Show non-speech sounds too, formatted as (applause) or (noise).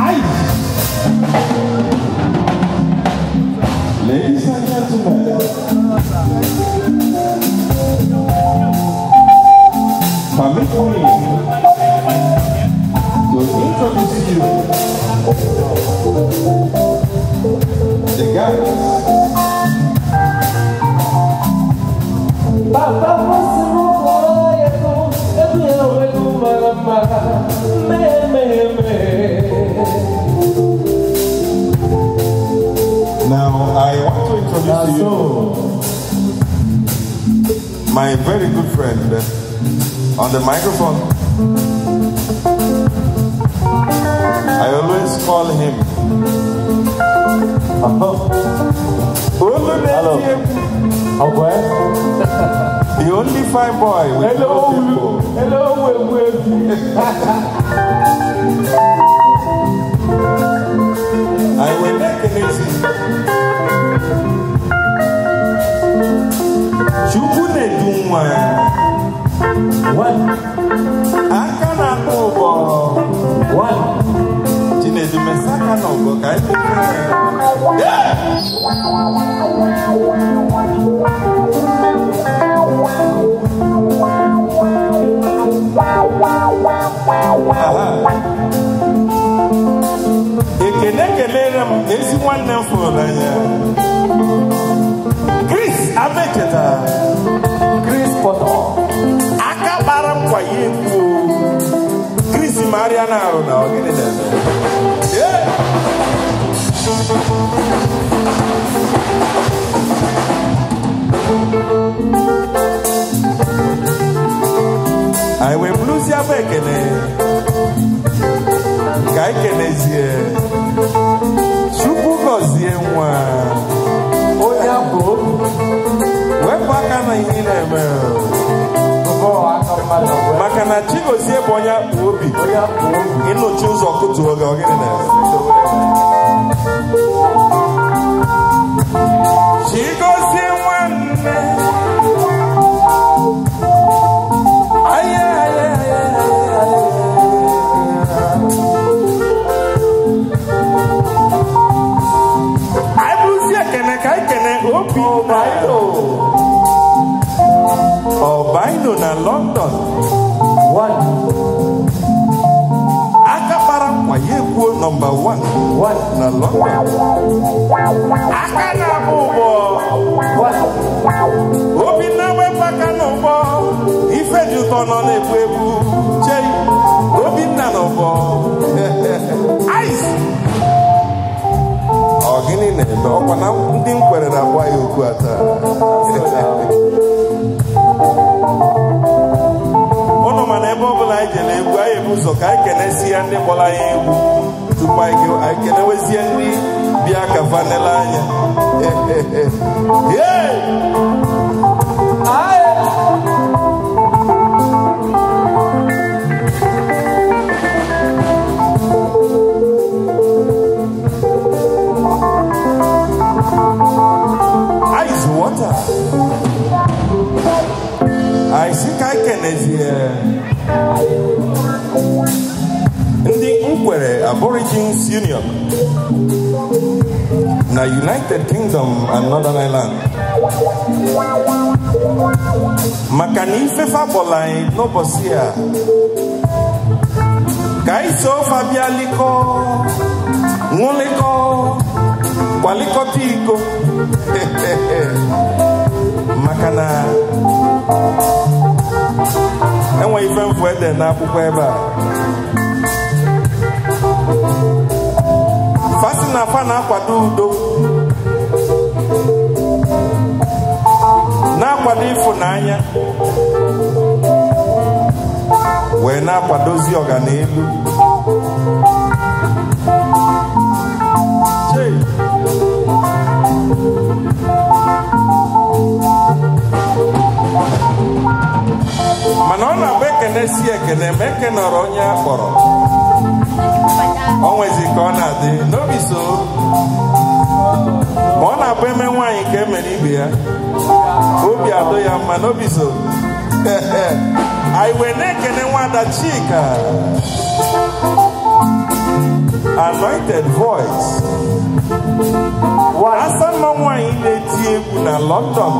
Ai! Ladies and gentlemen, permit me to introduce you the guys. Papa, Now I want to introduce you so. my very good friend uh, on the microphone. I always call him. Hello. Hello. He only fine boy I will make it easy. Chukwu na-edu nwa ya. Aka na-akpọ ụgbọ. Chinedu mesa aka na ụgbọ ka anyị Yeah. ekele kelere m ezi nwanne m fụrụ anya Chris Abeketa Chris Potter aka gbara m kwa ya ekwu Chris Mariana arụ na ọgịnị dada agba ekene ka ikenezie chukwu gọzie nwa onye abụ wepụ aka na ihe ị na-eme maka na chigozie bụ onye akpụ obi ịnụchi ụzọ kụtuo gị ọgịnị na London one Akapara, kpara nkwa ya ekwuo 1 1 na London Akana, na-agba ụgbọ obi na-enwepụ aka n'ụgbọ ife dị ụtọ nọ na-egbu egbu chee ụzọ ka anyị kenesie ndị gbara anyị egwu tupu anyị kenewezie ndị bịa ka fanele anya (laughs) Ice water. I think I can. Yeah ndị Nkwere Aborigines Union na United Kingdom and Northern Ireland maka na ifefe agbọla anyị n'ụbọchị a ka anyị so ofe bịa likọ ṅụlịkọ kwalikọta iko (laughs) maka na na n'akwụkwọ ebe a fasi na afa na-akwado udo na-akwado ịfụnanya wee na-akwadozi ọganelu. ekene si ekene ma eke nọrọ onye a kpọrọ onwezi ka ọ na-adị n'obi ma ọ na-abụ eme nwaanyị ka emere ibe ya obi adọ ya mma n'obi anyị wee na-ekene nwada chika anointed voice asa mma nwaanyị na-eti egwu na london